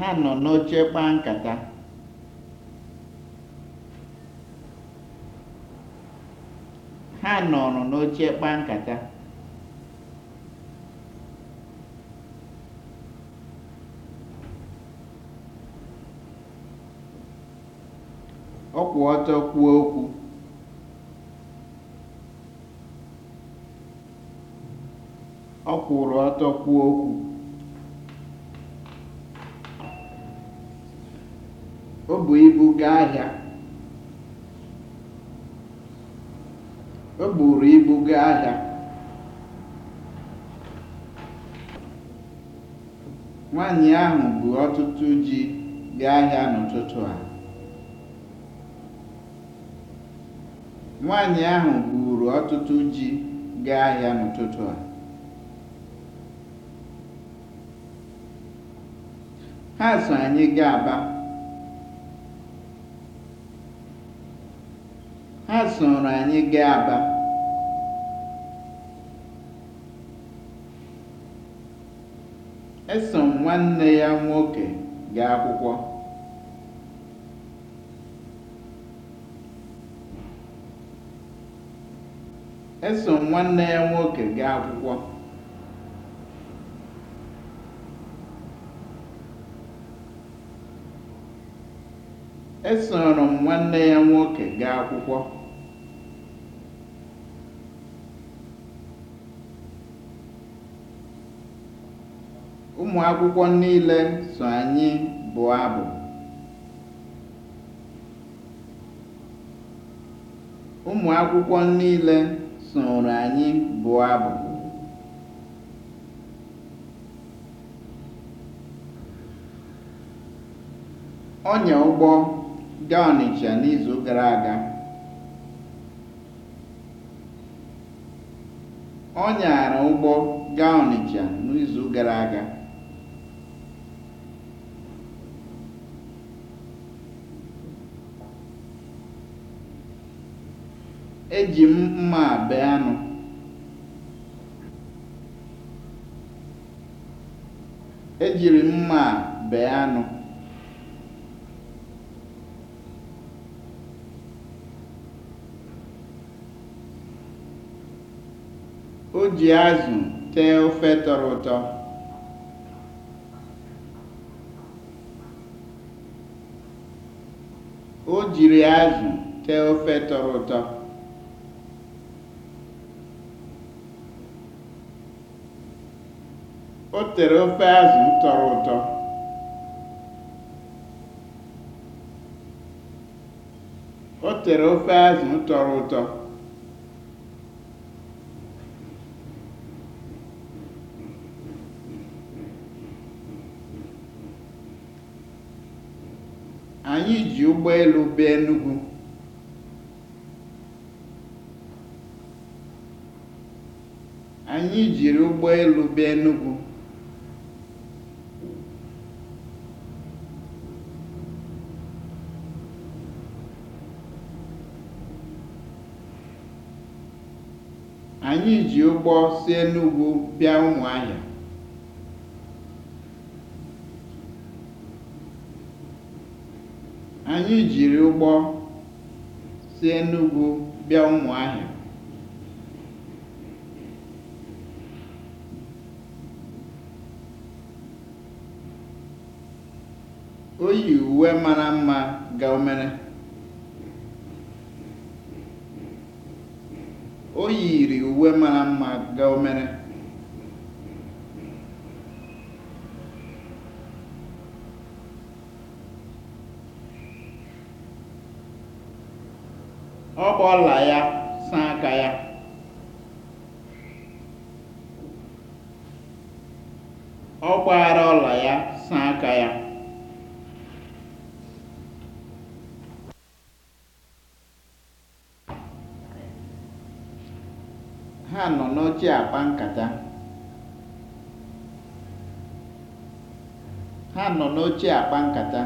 ha nọ n'oche kpaa nkata. ha nọrọ n'oche kpaa nkata ọ okwu ọ kwụrụ ọtọ okwu o bu ibu gaa ahịa o gaa ahịa nwaanyị ahụ bu ọtụtụ ji gaa ahịa n'ụtụtụ a ahụ buru ọtụtụ ji gaa ahịa n'ụtụtụ a ha so anyị gaa Aba Ha sooro anyị gaa Aba. Eso nwanne ya nwoke gaa akwụkwọ. Eso nwanne ya nwoke gaa akwụkwọ. Esoro m nwanne ya nwoke gaa akwụkwọ. E Ụmụ akwụkwọ niile so anyị bụọ abụ. Ọnya ụgbọ gaa Ọnịcha Ọ nyara ụgbọ gaa Ọnịcha n'izu gara aga. Eji m mma a bee anụ. O ji azụ tee O jiri azụ tee ofe tọrọ ụtọ. o tere ofe azụ tọrọ ụtọ anyị ji ụgbọelu bịa anyị bịa Enugu Anyị ji ụgbọ si Enugwu bịa ụmụ Anyị jiri ụgbọ si Enugwu bịa O yi uwe mara mma gaa omere. o yiri uwe mara mma ga omere. ọ gba ọla ya saa aka ya ọ gba anaghịchi akpa nkata. Ha nọ n'oche akpa nkata.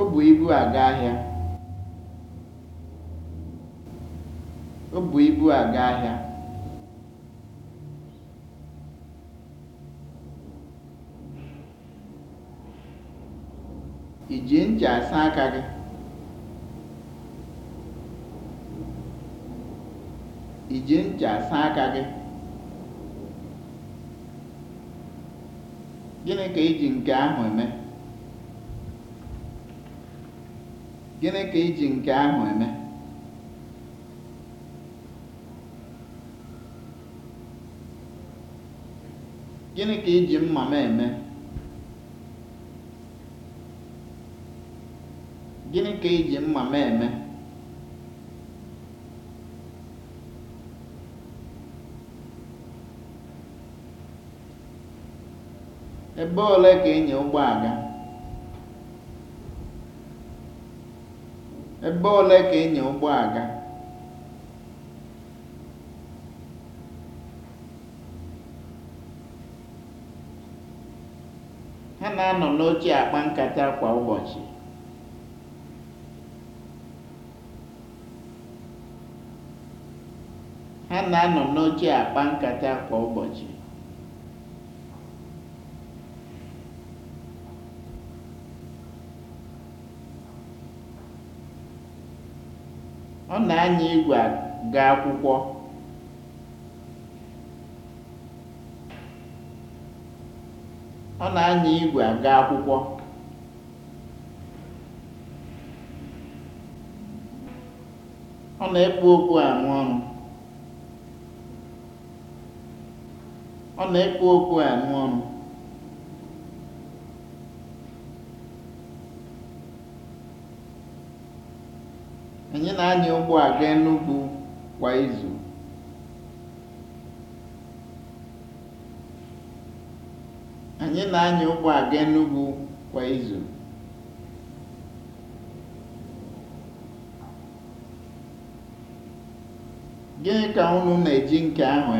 O bu ibu aga ahịa. O bu ibu aga ahịa. Iji ncha asa aka gị? I ji ncha asa aka gị? Gịnị ka iji nke ahụ eme? Gịnị ka iji nke ahụ eme? Gịnị ka iji ji mma m eme? Gịnị ka i ji mma m eme? Ebe ole ka ịnya e ụgbọ aga? Ebe Ha na-anọ n'oche akpa nkata Ha na-anọ n'oche akpa nkata kwa ụbọchị. Ọ na-anya igwe aga akwụkwọ. Ọ na-anya igwe akwụkwọ. Ọ na-ekpu okpu arụ Ọ ọrụ. Anyị na-anya ụgbọ aga Enugwu kwa izu. Gịnị ka unu na Gịnị ka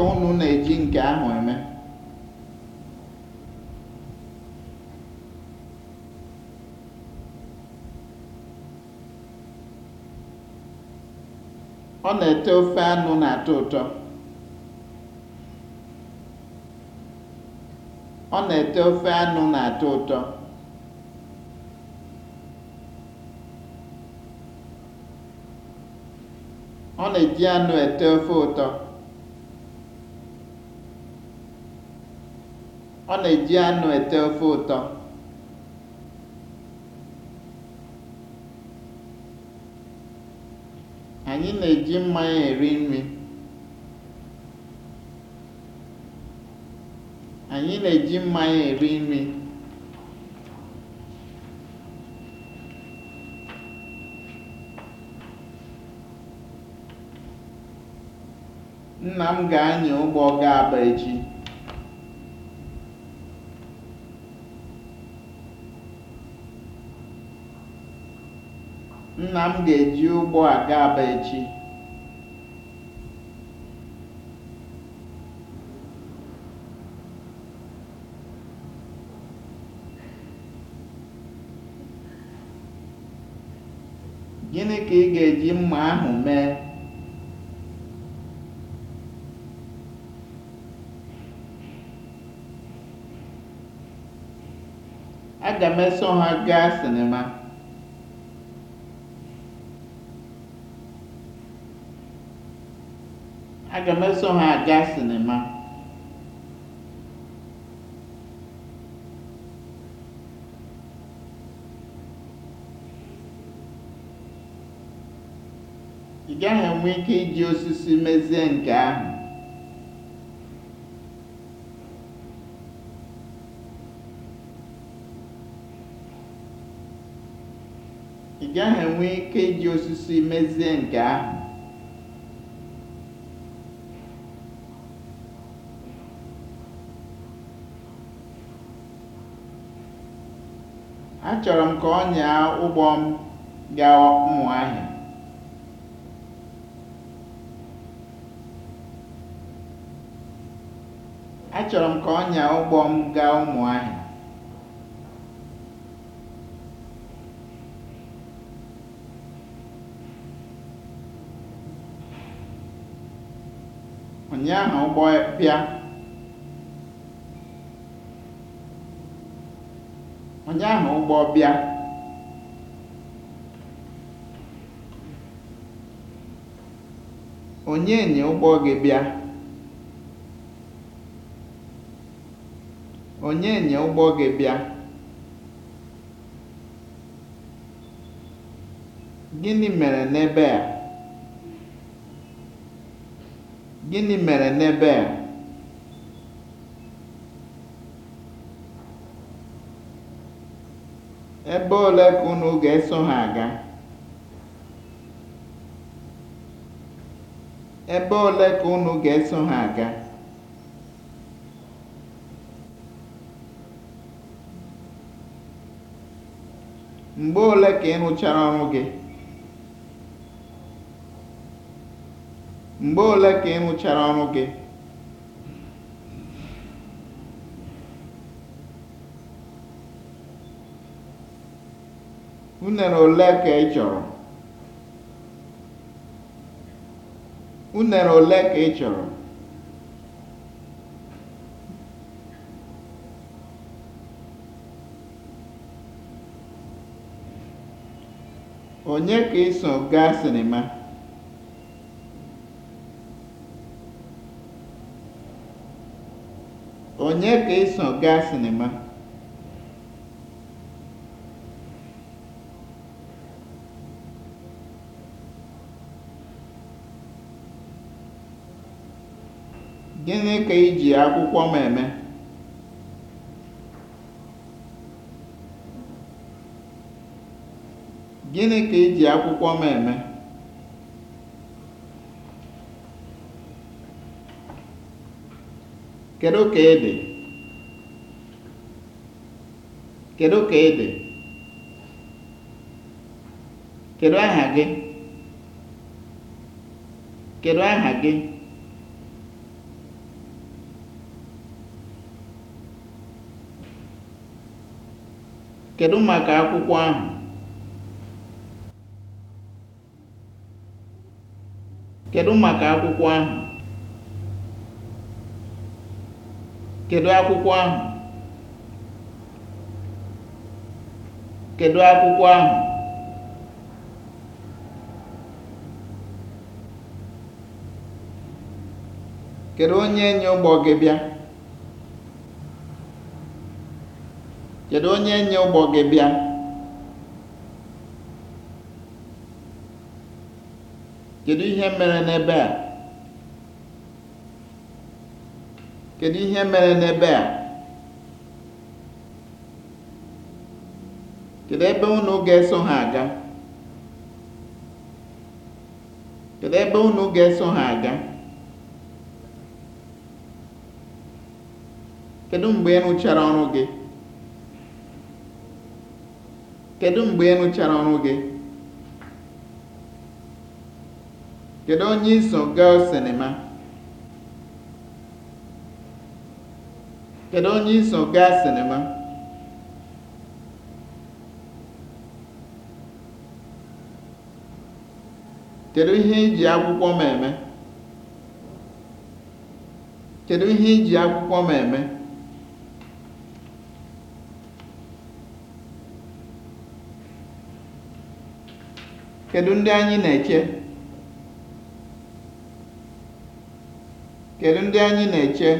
unu na-eji nke ahụ eme? Ọ na-ete ofe anụ na-atọ ụtọ. Ọ na-ete ofe anụ na-atọ ụtọ. Ọ na-eji anụ ete ofe ụtọ. Ọ na-eji anụ ete ofe ụtọ. Anyị na-eji mmanya eri nri. Nna m ga-anya ụgbọ ga Aba echi. Nna m ga-eji ụgbọ aga Aba echi. Gịnị ka ị ga-eji mma ahụ mee? Aga m eso ha gaa sinima. aga m eso ha aga sinima ị gaghị enwe ike iji osisi mezie nke ahụ ị gaghị enwe ike iji osisi mezie nke ahụ Achọrọ m ka ọ nyaa ụgbọ m Achọrọ m ka ụgbọ m gaa Ụmụahịa. Ụnyaahụ ụgbọ ahụ ụgbọ bịa onye enyi ụgbọ gị bịa onye enyi ụgbọ gị bịa gịnị mere n'ebe a gịnị mere n'ebe a Ebe ole ka unu ga-eso ha aga? Ebe ole ka unu ga-eso ha aga? Mgbe ole ka ị rụchara ọrụ gị? Mgbe ole ka ị rụchara ọrụ gị? Unere ole ka ị chọrọ? Onye ka ị so gaa sinima? gaa sinima? Gịnị ka i ji akwụkwọ m eme? Gịnị ka i ji akwụkwọ m eme? Kedụ ka ị dị? Kedụ ka ị dị? Kedụ aha gị? Kedụ aha gị? Kedu maka akwụkwọ ahụ? Kedu maka akwụkwọ ahụ? Kedu akwụkwọ ahụ? Kedu akwụkwọ ahụ? Kedu onye enyi ụgbọ gị bịa? kedu onye nye ụgbọ gị bịa kedụ ihe mere n'ebe a kedụ ihe mere n'ebe a kedu ebe unu ga-eso ha aga kedu ebe unu ga-eso ha aga kedu mgbe ịnụchara rụchara ọrụ gị kedu mgbe ị rụchara ọrụ gị kedu onye iso gaa sinima kedu onye iso gaa sinima kedu ihe iji akwụkwọ m eme kedu ihe iji akwụkwọ m eme Kedu ndị anyị na-eche? Kedu ndị anyị na-eche?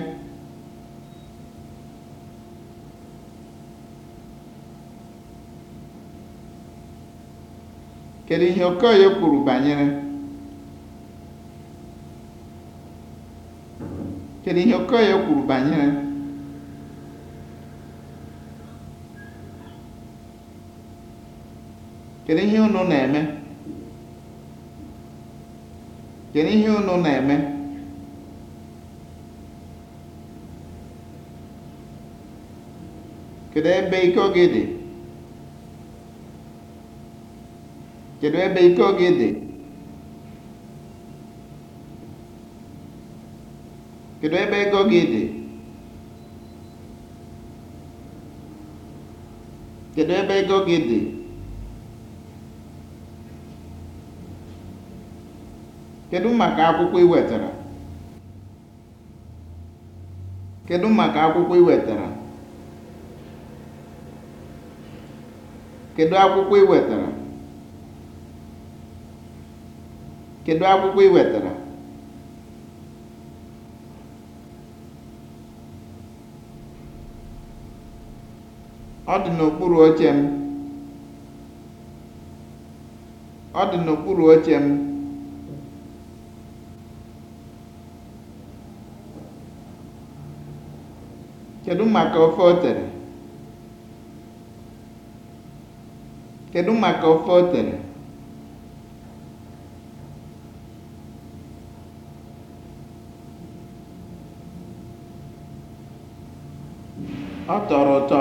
Kedụ ihe Okoye kwuru banyere? Kedu ihe Okoye kwuru banyere? Kedu ihe unu na-eme Kedu ihe unu na-eme? Kedu ebe iko gị dị? Kedu ebe iko gị dị? Kedu ebe ego gị dị? Kedu ebe ego gị dị? Kedu maka akwụkwọ ị wetara? Kedu maka akwụkwọ ị Kedu akwụkwọ ị wetara? Ọ dị n'okpuru oche Ọ dị n'okpuru oche m. Kedụ maka ofe o tere? maka ofe o tere? Ọ tọrọ ụtọ.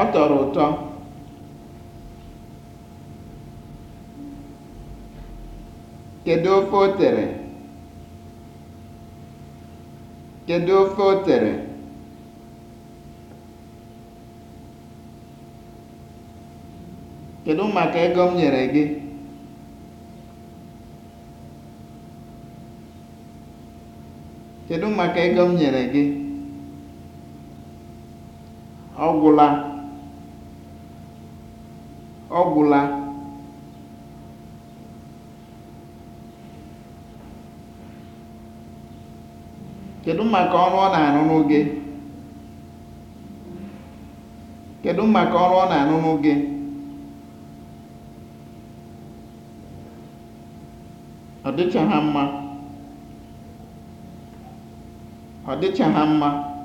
Ọ tọrọ ụtọ. Kedụ ofe o tere? Kedu ofe o tere? Kedụ maka ego m nyere gị? Kedụ maka ego m Ọ kedu maka ọrụ ọ na-arụrụ gị kedu maka ọrụ ọ na-arụrụ gị ọ dịcha mma ọ dịcha mma